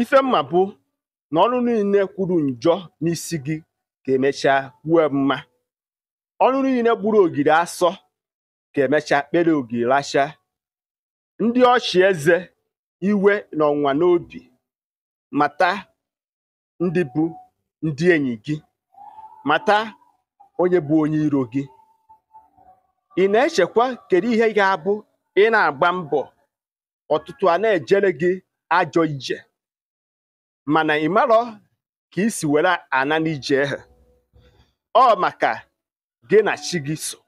ife mma bụ na ọrụ niile kwuru njọ n'isi gị ka emecha kwue mma ọrụ niile gburu ogiri asọ ka emechaa kpere ogiri racha ndị ọchị eze iwe na ọnwa n'obi mata ndị bụ ndị enyi gị mata onye bụ onye iro gị ị na-echekwa kedu ihe ga-abụ ị na-agba mbọ ọtụtụ a na-ejere gị ajọ ije mana marọ ka isi were ana n'ije ehe ọ maka gị na chi gị so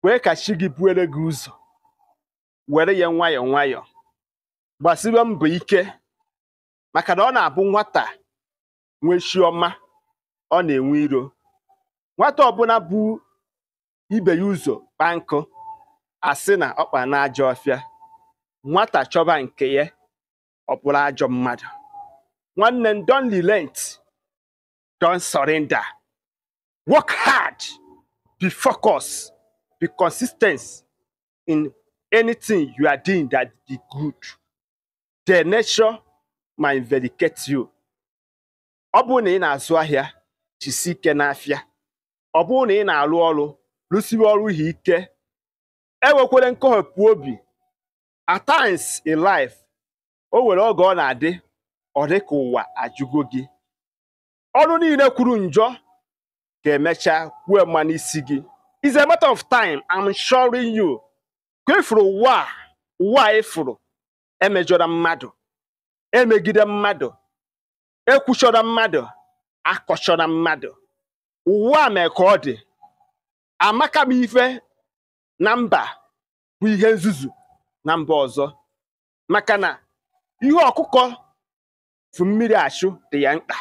kwee ka chi gị buere gị ụzọ were ya nwayọ nwayọ gbasiwe mbọ ike maka na ọ na-abụ nwata nwee chiọma ọ na-enwe iro nwata ọbụla bụ ibe ya ụzọ kpankụ nkụ asị na ọkpa na ajọ ọfịa nwata chọba nke ya ọ bụrụ ajọ mmadụ nwanne m don relent don surrender work hard be focus be consistent in anything you are doing that is good the nature ma invedicate you ọ bụrụ na ị na-azụ ahịa jisi ike n'afịa ọ bụrụ na ị na-arụ ọrụ rụsiwe ọrụ ha ike enwekwere nkọhapụ obi at times in life o nwere oge ọ na-adị ọ dị ka ụwa ajụgo gị ọrụ niile kwuru njọ ka emecha kwuo mma isi gị it's a matter of time i'm showing you ka ịfụrụ e ụwa ụwa ịfụrụ emejọra e mmadụ emegide mmadụ ekwuchọrọ mmadụ akọchọrọ mmadụ ụwa mee ka ọ dị amaka m ife na mba bụ ihe nzuzu na mba ọzọ maka na ihe ọkụkọ efu mmiri achụ dị ya mkpa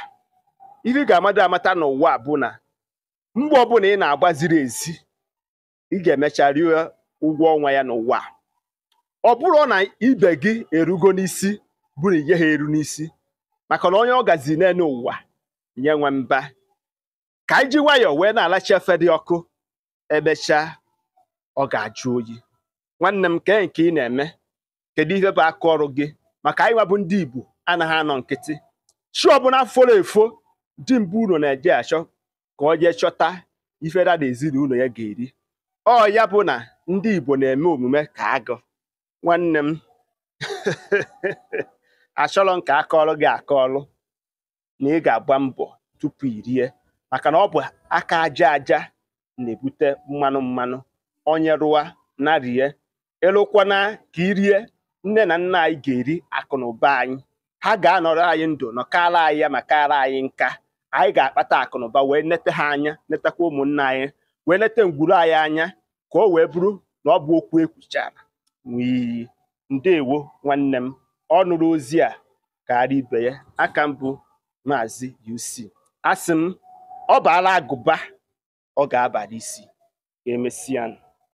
ihe ị ga-amado amata n'ụwa bụ na mgbe ọbụla ị na-agba ziri ezi ị ga-emecha rie ụgwọ ọnwa ya n'ụwa ọ bụrụ na ibe gị erugo n'isi bụrụ ihe ha eru n'isi maka na onye ọ gazi naene ụwa nye nwe mba ka anyị ji nwayọọ wee na alacha efe dị ọkụ emechaa ọ ga-ajụ oyi nwanne m kee nke ị na-eme kedu ihe bụ aka ọrụ gị maka anyị nwa bụ ndị Igbo anaghị anọ nkịtị chi ọbụla foro efo mbụ unu na-eje achọ ka ọ jee chọta ife dada ezinụlọ ya ga-eri ọ ya bụ na ndị Igbo na-eme omume ka agụ nwanne m achọrọ m ka gị aka ọrụ na ị ga-agba mbọ tupu irie maka na ọ bụ aka aja aja na-ebute mmanụ mmanụ onye rụwa na rie ịlụkwana ka irie nne na nna anyị ga-eri akụ na ụba anyị ha ga-anọrọ anyị ndụ nọkara anyị ya ma kara anyị nka anyị ga-akpata akụnụba wee nete ha anya netakwa ụmụnna anyị wee nete ngwuru anyị anya ka o wee bụrụ na ọ bụ okwu ekwuchara n'iyi ndewo nwanne m ọ nụrụ ozi a karịa ibe ya aka mbụ maazị UC asị m ọ agụba ọ ga-abara isi emesịa